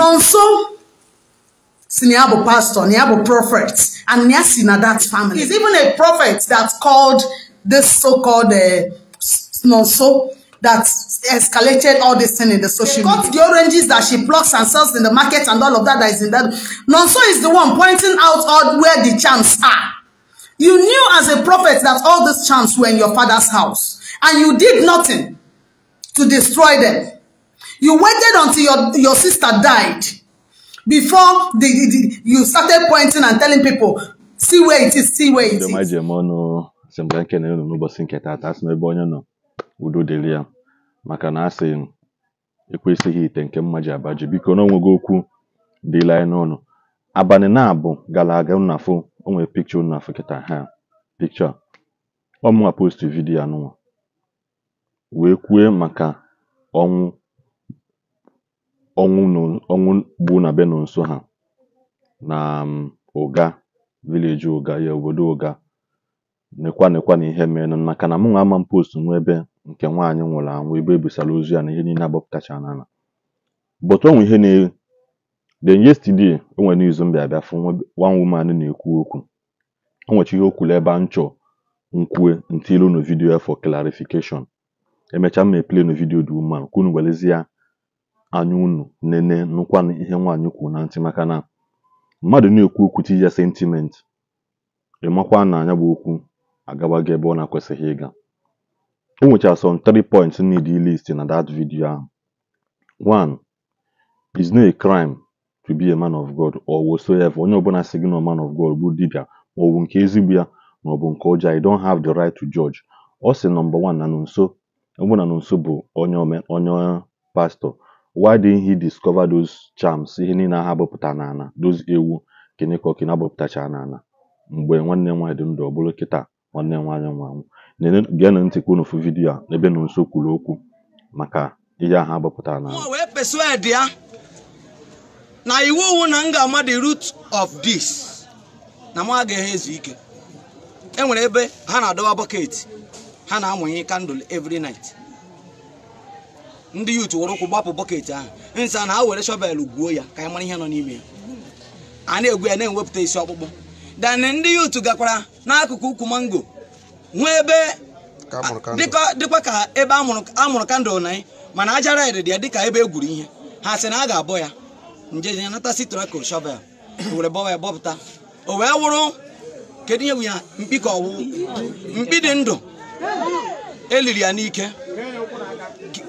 nọ nso si na ya bụ pastor na ya bụ prophet and ya si na that family is even a prophet that called this so-called uh, eh, nọ nso that escalated all this thing in the social media. They cut the oranges that she plucks and sells in the market and all of that that is in that. Nonso is the one pointing out all where the charms are. You knew as a prophet that all these charms were in your father's house and you did nothing to destroy them. You waited until your, your sister died before the, the, the, you started pointing and telling people, see where it is, see where it is. ji eme ọnụ semblanke na elu n'ụbọchị nke tata asị n'ebe onye nọ udo dịrị ya maka na asị m ekwesịghị ite nke mma ji abaji biko na onwego okwu dịla anyị n'ọnụ abalị na-abụ gara aga nnafụ onwe pikcha nnafụ kịta ha pikcha ọmụwa post vidiyo anụnwa wee kwue maka ọnwụ ọnwụ ọnwụ bụ na be nso ha na um, ụga vileji ụga ya obodo ụga nekwa nekwa na ihe mee maka na mụnwa ama m post nwa ebe nke nwaanyị nwụrụ anwụ ebe ebisara ozu ya na ihe niile agbapụtacha n'ala but onwe ihe na-ewe then yesterday o nwere n'izu m bịa fụ one woman na-ekwu okwu o nwechi ihe o kwuru ebe a chọ nkwue ntilu no vidiyo for clarification emechaa m ma eplay vidiyo dị ume a kwunu ya. anya unu nene nụkwanụ ihe nwaanyị kwuru na ntị maka na mmadụ na-ekwu okwu ya sentiment ịmakwa na anya bụ okwu agabago ebe ọ na-akwesịghị ịga o nwechara some three points need list na that video ahụ one is no a crime to be a man of God or whatsoever onye ọbụla si gị na man of God bụ dibia maọbụ nke ezigbo ya bụ nke ọjọọ I don't have the right to judge ọ sị nọmba one na nso ọbụna na nso bụ onye onye why didn't he discover those charms ihe niile ahụ abụpụtara n'ala those ewu kịnịkọkịnị abụpụtachara n'ala mgbe nwanne nwaanyị dị ndụ ọ bụrụ kịta nwanne nwaanyị nwa anwụ geenụ ntị kwuo n'ofu vidiyo a ebe na nso kwuru okwu maka ihe ahụ abụpụtara n'ala na iwu wu na m ga-ama of this na m ezu ike e nwere ebe ha na-adọba bọket ha na-amụnye kandụl every night ndị yut were ụkwụ gbapụ bọket ahụ nsa na ha were shọvel gwuo ya ka anyị mara ihe nọ n'ime ya a na-egwu ya na-ewepụta isi ọkpụkpụ dan ndị yut gakwara n'akụkụ ukwu mango nwee ebe dịkwa ka ebe amụrụ kandụl na anyị mana aja raịd dị ya dịka ebe egwuru ihe ha sị na a ga-abọ ya njeje nata sitrako shọvel were bọwa ya bọpụta o wee wụrụ kedu ihe ya mkpi ka ọwụwụ mkpi dị ndụ eliri ya n'ike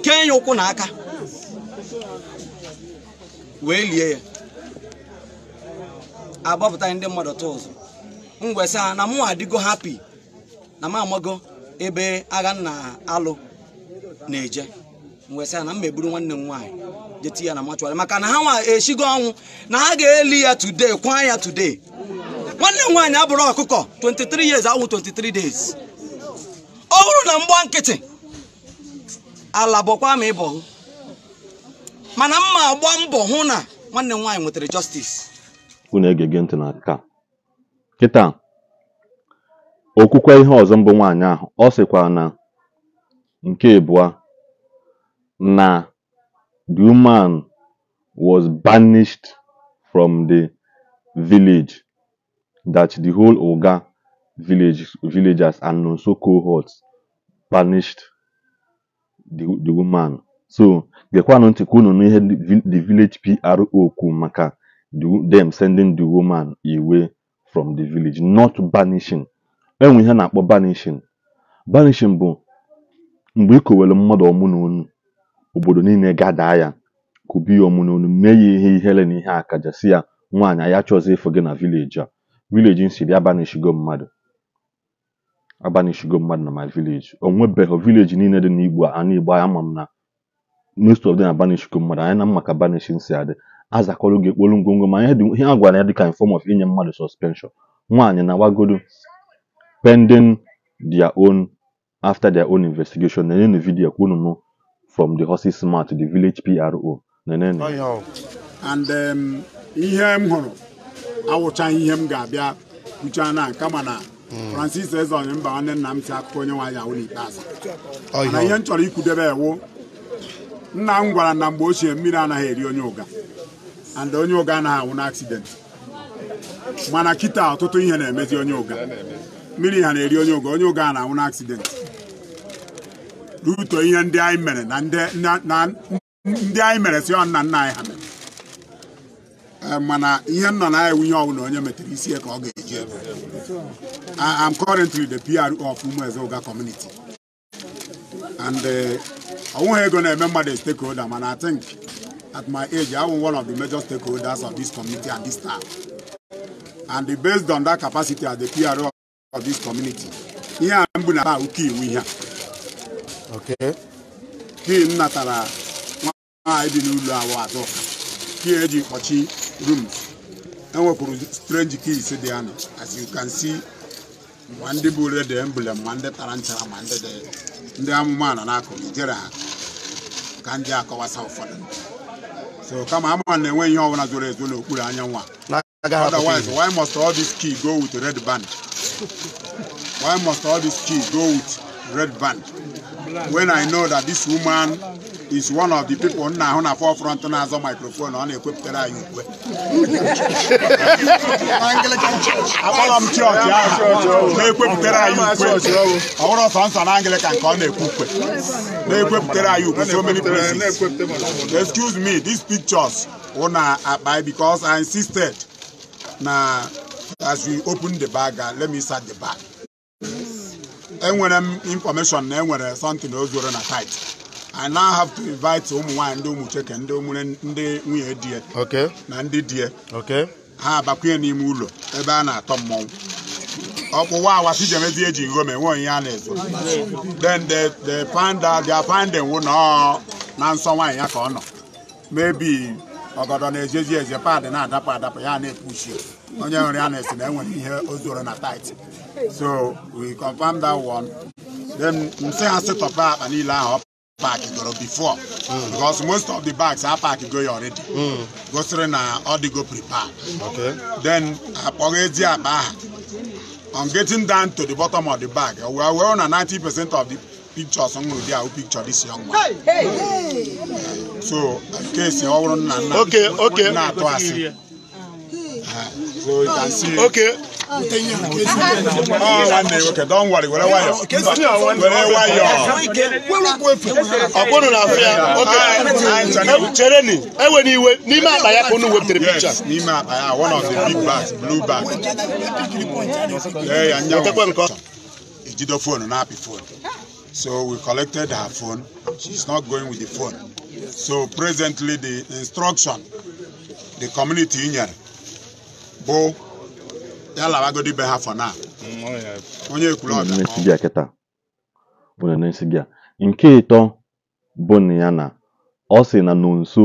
kee ya ụkwụ na aka wee lie ya agbapụta ndị mmadụ tụ ụzọ. ngwesị ha na mụ adịgo hapi na m amago ebe agha nna alụ na-eje ngwesị ha na m meburu nwanne m nwaanyị jeti ya na machụarị maka na ha nwa eshigo ọnwụ na ha ga-eli ya today kwa ya today nwanne m nwaanyị abụrụ ọkụkọ 23 years awụ 23 days ọ bụrụ na mgba nkịtị ala bụkwa ma ịbọ mana mma agba mbọ hụ na nwanne m nwaanyị nwetara justice unu egege ntị na ka kịta okwukwe ihe ọzọ mbụ nwaanyị ahụ ọ sịkwara na nke abụọ na the woman was banished from the village that the whole oga village villagers and nonso cohorts banished the, the woman so gekwanụ ntị ka ihe n'ihe the village pro kwuru maka them sending the woman away from the village not banishing enwe ihe na-akpọ banishing banishing bụ mgbe ikowere mmadụ ọmụ na onu obodo niile gadaa ya kụbi ya ọmụ na onu mee ya ihe ihere na ihe si ya nwaanyị ya chọzi ịfụ gị na vileji a vileji nsiri ya banishigo mmadụ agbanishigo mmadụ na my village ndị vileji niile dị n'Igbo ana Igbo ama m na most of them agbanishigo mmadụ anyị na maka banishin si adị azakọrọ gị ekpolu ngwongwo ma ihe a gwara ya dịka ka form of inye mmadụ suspension nwaanyị na wagodo pending their own after their own investigation nenenu vidiyo kwunu m from the horse's mouth the village PRO oh, and um, ihe m hụrụ awụchaghị ihe m na kama Francis Eze onye mba nwanne nna m si akụkọ onye nwaanyị awụla ikpeazụ mana ihe m chọrọ ikwudebe ewu nna m gwara na mgbe ochie mmiri anaghị eri onye ụga and onye ụga anaghị anwụ n'aksident mana kịta ọtụtụ ihe na-emezi onye ụga mmiri ha na-eri onye ụga onye ụga a na-anwụ n'aksident ruto ihe ndị anyị mere na ndị anyị mere si nna nna anyị ha Eh, mana ihe m nọ na ya nwunye ọbụla onye metere isi ka ọ ga-eji ebe I am currently the PR of ụga community and eh, ọnwụghị ego na-eme mmadụ stakeholder mana I think at my age I am one of the major stakeholders of this community and this town and based on that capacity as the PR of this community ihe a mbụ na ụka iwu ihe a kii natara nwaanyị dị n'ụlọ awụ atọ kii eji kpọchi rooms enwekwuru strange keys dị anọ as you can see ma ndị bụ red emblem ma ndị tara nchara ma ndị dị ndị amụma na n'akụrụ ijere ha ka ndị akọwasa ụfọdụ so kama ama na enwe ihe ọbụla zoro ezo n'okpuru anyanwụ a otherwise why must all this key go with red band why must all this key go with red band when i know that this woman is one of the people nna ahụ na forefront na-azọ microphone ọ na-ekwepụtara anyị ukwe akpọrọ m chọọchị ahụ na-ekwepụtara anyị ukwe ọ bụrụ nsọ na Anglican ka ọ na-ekwu ukwe na-ekwepụtara anyị ukwe so many places excuse me these pictures wụ na akpa because I insisted na as we open the bag uh, let me start the bag enwere m information na enwere something ozuru na site I now have to invite ụmụ nwaanyị ndị ụmụ cheke ndị ndị nwunye di ya na ndị di ya ha abakwunye n'ime ụlọ ebe a na-atọ mmọnwụ ọkpụwa si jemezi eji nghom enwe onye a na-ezo then the the panda na nsọ nwaanyị ya ka ọ nọ mebi ọgọdọ na-ejezi eze paadị na-adapụ adapụ ya na-epushi onye nwere ya na-esi na enwere ihe o zoro na tait so we confirm that one then m ha sị akpa niile ahụ park goro before mm. because most of the bags are park go already mm. go sịrị na the go prepare. okay. then akpọghị ezi akpa aha on getting down to the bottom of the bag we are well na ninety percent of the pictures m hụrụ dị picture this young man hey, hey. so kesi ọ nna nna na-atụ asị so you can see. Okay nwoke don worry were nwayọ were nwayọ ọ bụrụ na afọ ya oge chereni enwere iwe n'ime akpa ya ka unu wepụtara picha n'ime akpa ya one of the big bags blue bag wetekwe nke ọcha ejido fonu na-apị fonu So we collected her phone. She's not going with the phone. So presently the instruction, the community union, Bo ha mm, oh, onye ekwuru ọbịa na nke ịtọ bụ na ya na ọ sị na nonso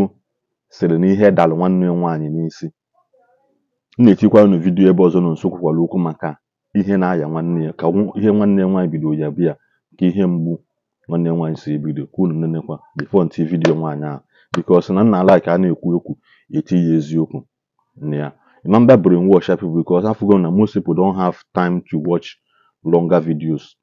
sịrị na ihe dalụ nwanne nwaanyị n'isi m na-etikwa unu vidiyo ebe ọzọ nonso kwukwara okwu maka ihe na-aya nwanne ya ka ihe nwanne ya nwaanyị bidoro ya bịa ka ihe mgbu nwanne nwaanyị si ebido ka unu nenekwa bifo ntị vidiyo nwaanyị ahụ sị na nna alaịka a na-ekwu okwu eti ya eziokwu na ya remember brainwash people because african na most people don have time to watch longer videos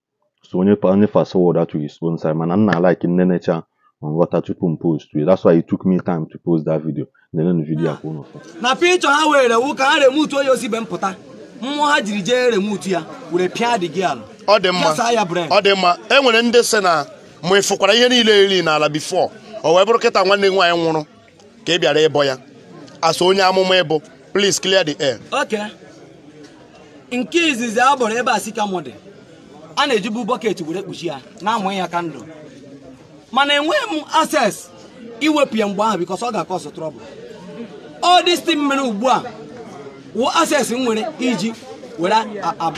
so onye onye fast forward that to his own side mana nna like nnenecha on water took m post it that's why it took me time to post that video Na video a na picture ha were wu ka ha remutu onye ozi ibe mpụta mmụọ ha jiri jee remutu ya were pịa di gị ala ọ dị e nwere ndị sị na ihe niile n'ala bifọ o bụrụ kịta nwanne nwaanyị nwụrụ ka ị bịara ịbọ ya asọ onye amụma ịbụ Please clear the air. Okay. nke izizi a bọrọ ebe a sikamụ dị a na-ejibu bọket were kpuchi ya na-amụ ya kandụl, mana enweghị m access iwepụ ya mgbe ahụ because ọ ga-akọsụ trọbụl all this thing mere ugbu a wụ access m nwere iji were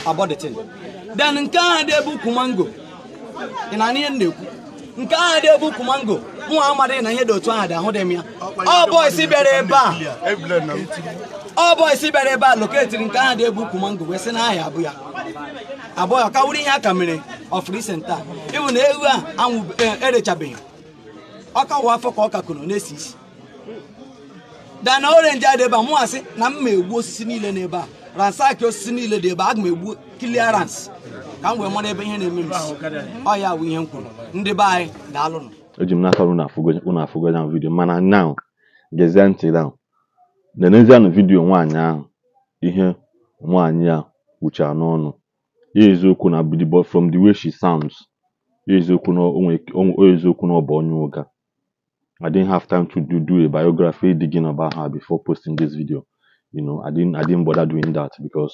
abọdetin Den nke ahụ dị ebe ukwu mango ị na ihe m na-ekwu nke ahụ dị ebe ukwu mango nwa amadịghị na ihe dị otu ahụ dị ahụ dị m ya ọ isi bịara ebe a ọ isi bịara ebe a loketiri nke a dị egwu ukwu mango wee si na ahịa abụ ya abụọ ya kawụrụ ihe a ka mere ọfụrụ ise nta na ewu a anwụ erechabeghị e ọ kawa afọ ka ọ kakụrụ na-esi isi dana orenji adị ebe a mụ asị na m egbu osisi niile ebe a ransaki osisi niile dị ebe a ga m egbu kiliarans ka m wee mara ebe ihe na-eme m ọ ya bụ ihe m kwuru ndị be anyị daalụnụ eji m n'aka unu afụgoja vidio mana now gezie ntị now lenezianụ vidiyo nwaanyị ahụ ihe nwaanyị a kwuchara n'ọnụ ya eziokwu na from the way she sounds ya eziokwu na eziokwu na ọ bụ onye ụga I didn't have time to do, do a biography digging about her before posting this video. You know, I didn't I didn't bother doing that because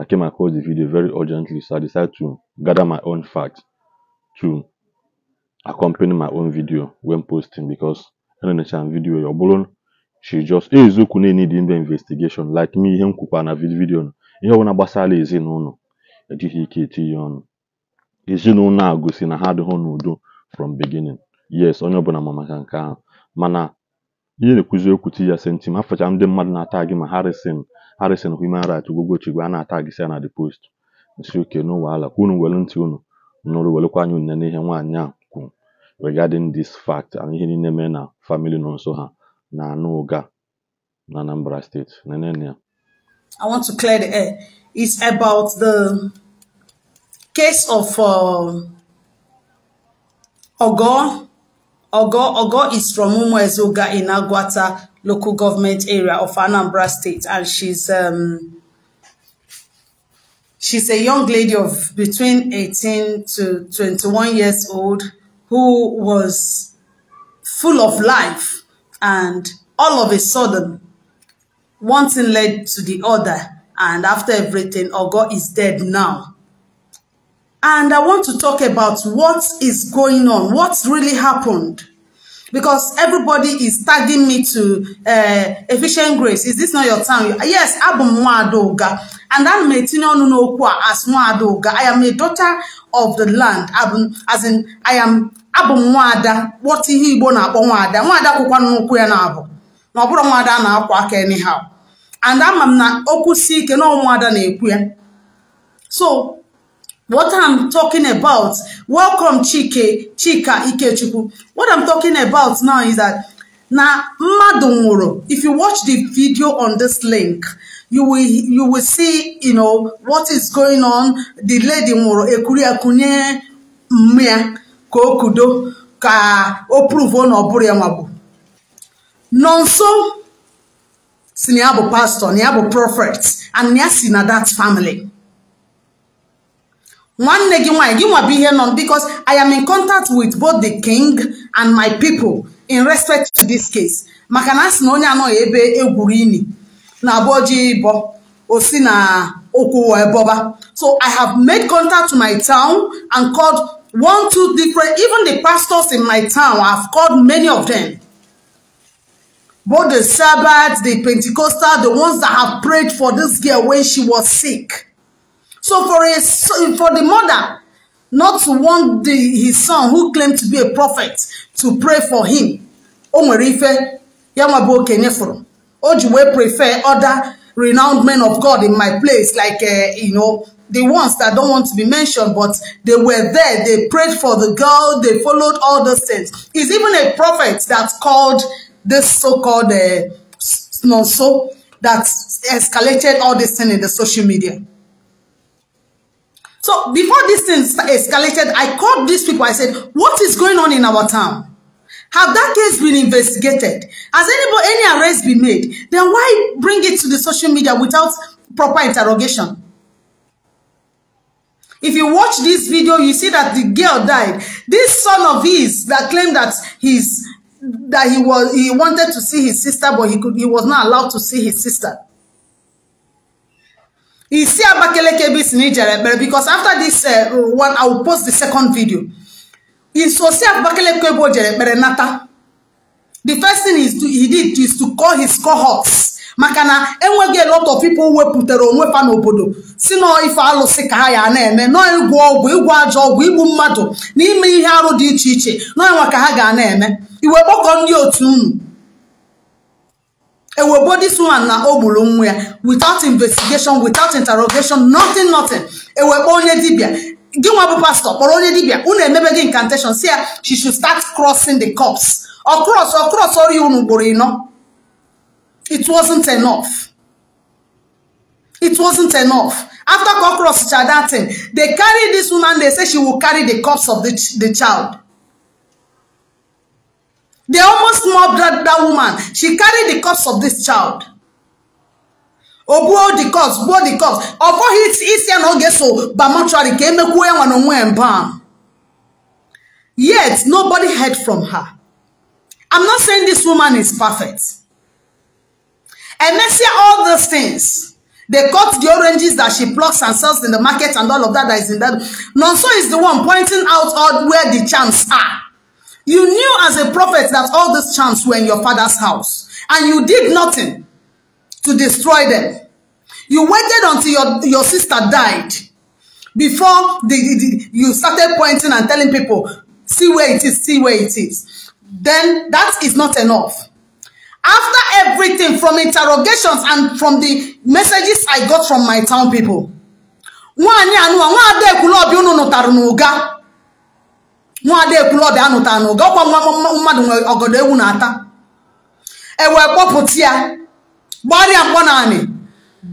I came across the video very urgently, so I decided to gather my own facts to accompany my own video when posting because I don't video video your balloon she just eziokwu na dị ndị investigeshon like me ihe m kwukwa na vidiyo ihe ọbụla gbasara ezinụlọ ejighị ike etinye ọnụ ezinụlọ a gosi na ha adịghị n'udo from beginning yes onye ọbụla ma maka nke ahụ mana ihe na-ekwuzi okwu ti ya sentim afacha ndị mmadụ na-ata gị ma harrison harrison human rights ugwogwochigwe a na-ata gị si na the post nsi oke n'ụwa ala ka unu were ntị unu nụrụ werekwa anya une n'ihe nwaanyị a kwuru regarding this fact and ihe niile mee na family nọ nso ha na na Anambra State. Nenenia. I want to clear the air. It's about the case of uh, Ogo. Ogo, Ogo is from Umuezuga in Agwata local government area of Anambra State, and she's um, she's a young lady of between 18 to 21 years old who was full of life and all of a sudden, one thing led to the other. And after everything, Ogo is dead now. And I want to talk about what is going on, what's really happened. Because everybody is tagging me to uh, Efficient Grace. Is this not your time? Yes, Abu Mwadoga. And I'm Metinonu Nokwa as Mwadoga. I am a daughter of the land. As in, I am abụ m kpọta ihe igbo na-akpọ nwaada nwaada kwụkwa n'ụkwụ ya na-abụ na ọ bụrụ nwaada na-akwa aka anyhow and ama m na okwu si ike na ụmụada na-ekwu ya so what I'm talking about welcome Chike Chika Ikechukwu what I'm talking about now is that na mmadụ nwụrụ if you watch the video on this link you will you will see you know what is going on the lady nwụrụ ekuru ekunye mmụọ ka o kudo ka o pruvuo na ọ bụrụ ya nwa bụ nọ nso si na ya bụ pastọ na ya bụ prophet and ya si na that family nwanne gị nwanyị gị nwa bụ ihe nọ because I am in contact with both the king and my people in respect to this case maka na a na onye anọghị ebe egwuru na abụọ ji ịbọ o si na okwu wee bọba so I have made contact to my town and called one two different even the pastors in my town I've called many of them both the Sabbath the Pentecostal the ones that have prayed for this girl when she was sick so for a for the mother not to want the, his son who claimed to be a prophet to pray for him Omerife, nwere ife ya prefer other renowned men of God in my place like uh, you know the ones that don't want to be mentioned, but they were there. They prayed for the girl. They followed all those things. It's even a prophet that called this so-called uh, no so that escalated all this thing in the social media. So before this thing escalated, I called these people. I said, what is going on in our town? Have that case been investigated? Has anybody, any arrest been made? Then why bring it to the social media without proper interrogation? If you watch this video, you see that the girl died. This son of his that claimed that he's that he was he wanted to see his sister, but he could he was not allowed to see his sister. because after this uh, one, I will post the second video. The first thing he did is to call his cohorts maka na enweghị lot of people wepụtara onwe fa n'obodo si nọọ ife alụsị ka ha ya na-eme nọọ ịgwọ ọgwụ ịgwọ ajọ ọgwụ igbu mmadụ na ime ihe arụ dị iche iche nọọ nwa ka ha ga na-eme iwe kpọkọ ndị otu unu ewebo this one na o gburu nwa ya without investigation without interrogation nothing nothing ewekpo onye dibịa gị nwa bụ pastọ kpọrọ onye dibịa unu emebe gị incantation si ya she should start crossing the cups ọ cross ọ cross ọrịa unu ugboro ịnọ It wasn't enough. It wasn't enough. After God crossed that thing, they carry this woman, they say she will carry the corpse of the, ch the child. They almost mobbed that, that woman. She carried the corpse of this child. Obuo the corpse, buo the corpse. Ọbọ hit isi na oge so ba mortuary ka emekwuo ya nwa n'onwe mbam. Yet, nobody heard from her. I'm not saying this woman is perfect. And see all those things. They cut the oranges that she plucks and sells in the market and all of that that is in that. Nonso is the one pointing out all where the charms are. You knew as a prophet that all these charms were in your father's house. And you did nothing to destroy them. You waited until your, your sister died before the, the, you started pointing and telling people, see where it is, see where it is. Then that is not enough. After everything from interrogations and from the messages I got from my town people, nwaanyị anụwa nwa ada ekwule ọbịa unu nụtara n'ụga nwa ada ekwule ọbịa anụtara n'ụga ọkwa nwa mmadụ nwere ọgọdọ ewu na-ata ewee kpọpụta ya gbarịa mkpọ naanị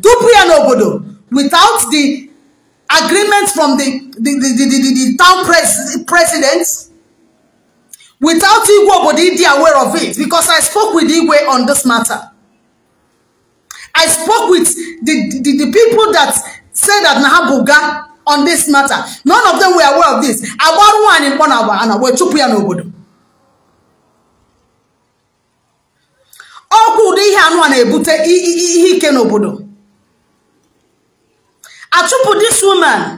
dupu ya n'obodo without the agreement from the the the the the town president without Igwe Obodi Idi aware of it because I spoke with Igwe on this matter. I spoke with the, the, the people that said that Nahabuga on this matter. None of them were aware of this. I want one Agbaruwa and Imponawa and Awe chụpụ ya n'obodo. Ọkwa ụdị ihe anụ a na-ebute ihe ike n'obodo. Achụpụ this woman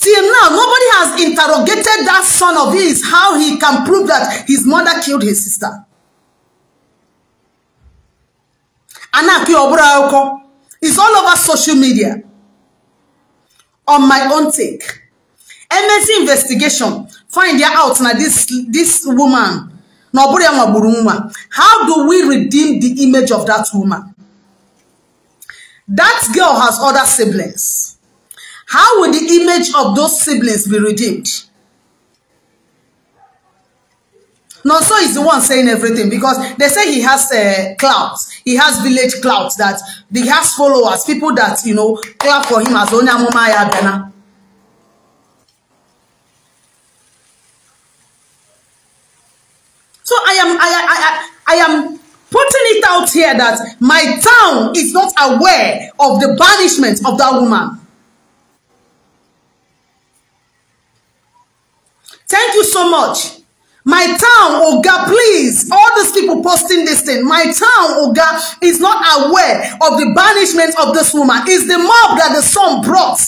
Till now, nobody has interrogated that son of his how he can prove that his mother killed his sister. Anaki Obraoko is all over social media. On my own take, MSc investigation find out now. this this woman na How do we redeem the image of that woman? That girl has other siblings. How will the image of those siblings be redeemed? Now, so is the one saying everything because they say he has uh, clouds. He has village clouds that he has followers, people that, you know, clap for him as only Mumaya Dana. So I am, I, I, I, I am putting it out here that my town is not aware of the banishment of that woman. Thank you so much. My town, Oga, please. All these people posting this thing. My town, Oga, is not aware of the banishment of this woman. It's the mob that the son brought.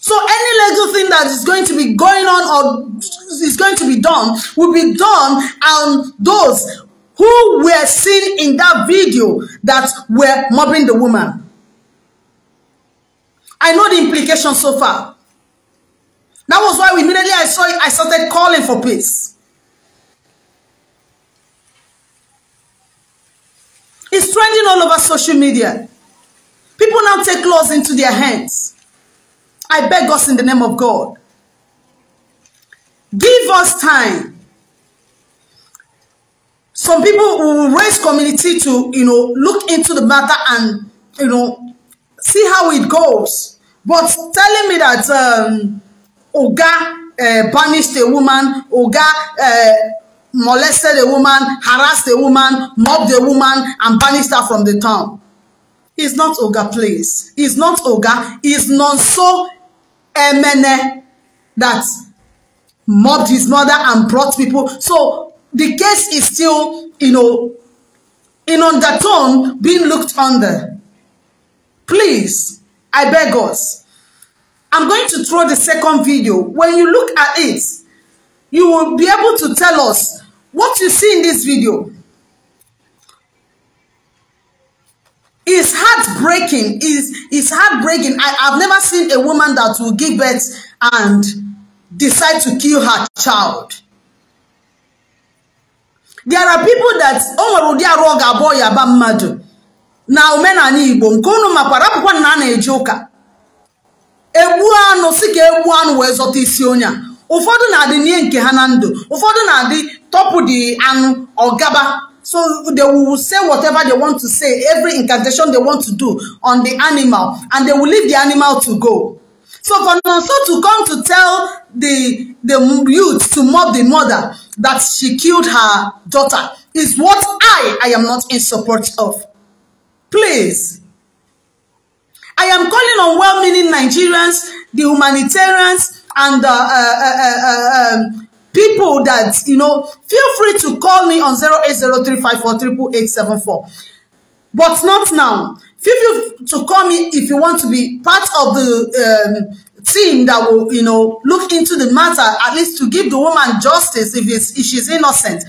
So any little thing that is going to be going on or is going to be done will be done And those who were seen in that video that were mobbing the woman. I know the implications so far. That was why immediately I saw it, I started calling for peace. It's trending all over social media. People now take laws into their hands. I beg us in the name of God. Give us time. Some people will raise community to, you know, look into the matter and, you know, see how it goes. But telling me that um, Oga uh, banished a woman, Oga uh, molested a woman, harassed a woman, mobbed a woman, and banished her from the town. It's not Oga please. It's not Oga. It's not so Emene that mobbed his mother and brought people. So the case is still, you know, in undertone being looked under. Please, I beg us, I'm going to throw the second video. When you look at it, you will be able to tell us what you see in this video. It's heartbreaking. It's, it's heartbreaking. I, I've never seen a woman that will give birth and decide to kill her child. There are people that o nwere ụdị arụ ọ ga-abụ ya na omenala Igbo nke unu na na-eji egbu anụ si ka egbu anụ wee zọta isi onye a ụfọdụ na-adị n'ihe nke ha na ndụ ụfọdụ na-adị tọpụ dị anụ ọgaba so they will say whatever they want to say every incantation they want to do on the animal and they will leave the animal to go so for nonso to come to tell the the youth to mob the mother that she killed her daughter is what i i am not in support of please I am calling on well-meaning Nigerians, the humanitarians, and uh uh, uh, uh, uh, um, people that, you know, feel free to call me on 0803548874. But not now. Feel free to call me if you want to be part of the um, team that will, you know, look into the matter, at least to give the woman justice if, it's, if she's innocent.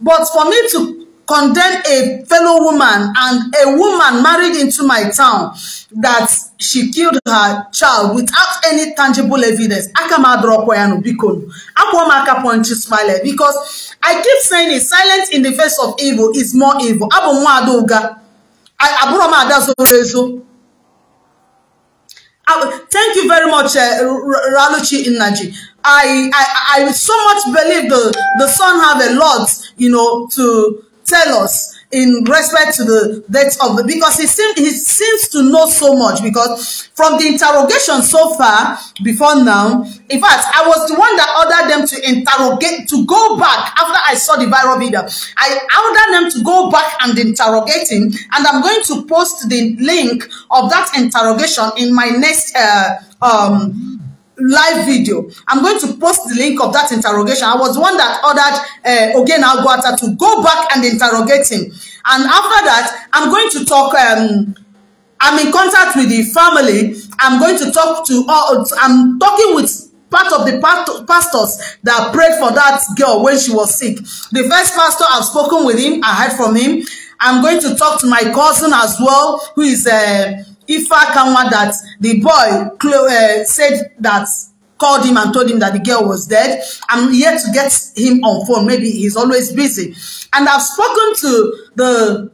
But for me to Condemn a fellow woman and a woman married into my town that she killed her child without any tangible evidence. Akamadrakwayanu Bikonu. Akwamaka Ponchi Smile. Eh, because I keep saying it, silence in the face of evil is more evil. Abu Mwadoga. Aburama Adazorezo. Thank you very much, uh, Raluchi Inaji. I, I, I so much believe the, the son have a lot, you know, to tell us in respect to the death of the because he seems he seems to know so much because from the interrogation so far before now in fact i was the one that ordered them to interrogate to go back after i saw the viral video i ordered them to go back and interrogate him and i'm going to post the link of that interrogation in my next uh, um live video. I'm going to post the link of that interrogation. I was one that ordered uh, Ogena Aguata to go back and interrogate him. And after that, I'm going to talk... Um, I'm in contact with the family. I'm going to talk to... Uh, I'm talking with part of the pastors that prayed for that girl when she was sick. The first pastor, I've spoken with him. I heard from him. I'm going to talk to my cousin as well, who is... Uh, Ifa Kanwa that the boy uh, said that called him and told him that the girl was dead. I'm yet to get him on phone. Maybe he's always busy. And I've spoken to the,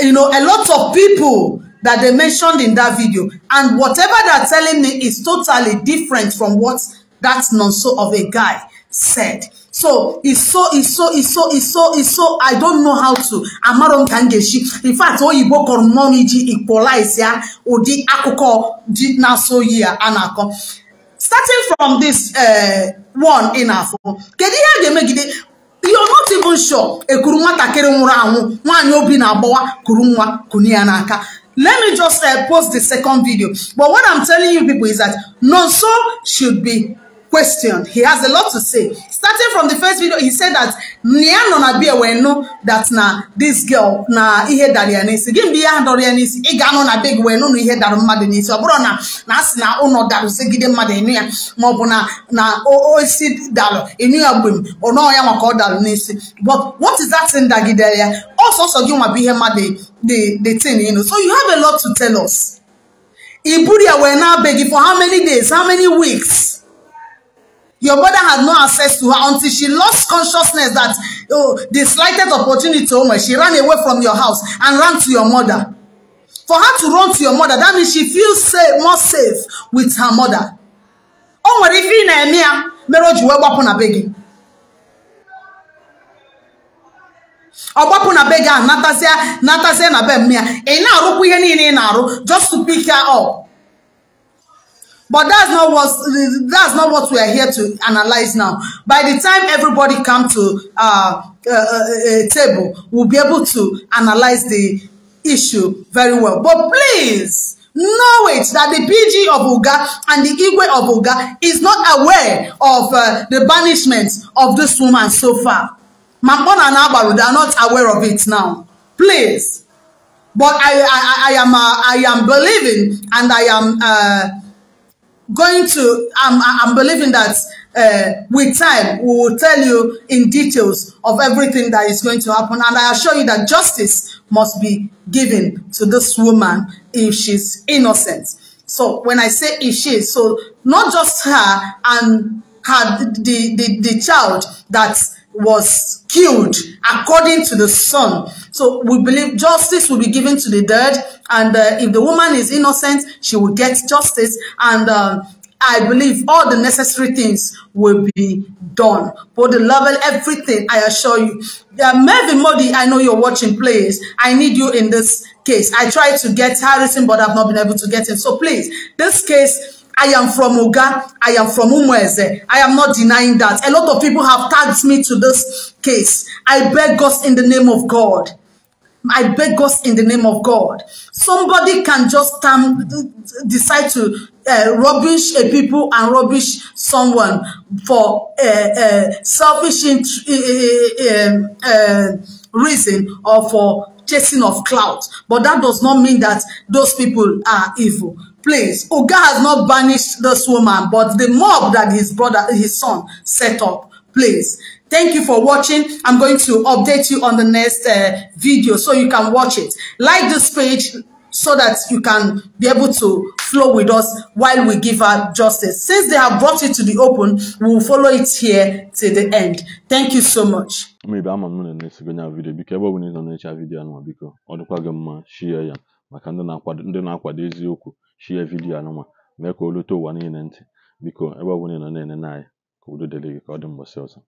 you know, a lot of people that they mentioned in that video. And whatever they're telling me is totally different from what that nonso of a guy said. So it's so it's so it's so it's so it's so I don't know how to amaro nkangeshi. In fact, oyibo kọrọmọniji equalize ya ụdị akụkọ dị na-asọ yi ya Starting from this uh, one ị na-afọ, kedu ihe a You're not even sure ekuru nwatakịrị nwụrụ anwụ nwaanyị obi na-agbawa kuru nwa n'aka. Let me just uh, post the second video. But what I'm telling you people is that Nonso should be question. He has a lot to say. Starting from the first video, he said that Niano na be aware no that na this girl na ihe dari anisi. Gim biya hand or anisi. Igano na big we no ihe daru mmadu So Obro na na si na uno daru se gide mmadu niya. Mo bu na na o o si daru enu ya gbem. Ono ya maka o daru nisi. But what is that thing that gide ya? Also so gim wa biya here the the thing you know. So you have a lot to tell us. Ibu Iburi aware na beg for how many days, how many weeks? Your mother had no access to her until she lost consciousness that oh, the slightest opportunity to oh Omo, she ran away from your house and ran to your mother. For her to run to your mother, that means she feels safe, more safe with her mother. O nwere ife ị na-eme ya mere o ji wee gbapụ na be na be gị E na be m ya ị na-arụkwa just to pick her up. But that's not what that's not what we are here to analyze now. By the time everybody come to uh, uh, uh, uh table, we'll be able to analyze the issue very well. But please know it that the PG of Uga and the Igwe of Uga is not aware of uh, the banishment of this woman so far. Mampon and Abaru, they are not aware of it now. Please. But I, I, I, am, uh, I am believing and I am... Uh, going to, I'm, I'm believing that uh, with time, we will tell you in details of everything that is going to happen. And I assure you that justice must be given to this woman if she's innocent. So when I say if she is, so not just her and her, the, the, the child that was killed according to the son. So we believe justice will be given to the dead. And uh, if the woman is innocent, she will get justice. And um, I believe all the necessary things will be done. for the level, everything, I assure you. Uh, Mervyn Modi, I know you're watching, please. I need you in this case. I tried to get Harrison, but I've not been able to get him. So please, this case I am from Uga. I am from Umueze. I am not denying that. A lot of people have tagged me to this case. I beg us in the name of God. I beg us in the name of God. Somebody can just um, decide to uh, rubbish a people and rubbish someone for uh, uh, selfish um, uh, reason or for chasing of clout. But that does not mean that those people are evil. place. Oga has not banished this woman, but the mob that his brother, his son set up Please, Thank you for watching. I'm going to update you on the next uh, video so you can watch it. Like this page so that you can be able to flow with us while we give her justice. Since they have brought it to the open, we will follow it here to the end. Thank you so much. Maybe I'm on to next video because everyone is on the video and because all to share maka ndị na-akwado ndị na-akwado eziokwu shie vidiyo anụnwa mee ka o ụwa niile ntị biko ebe ọ ị nọ na-enene anyị ka udo dịrị gị ka ọ dị mgbọsị ọzọ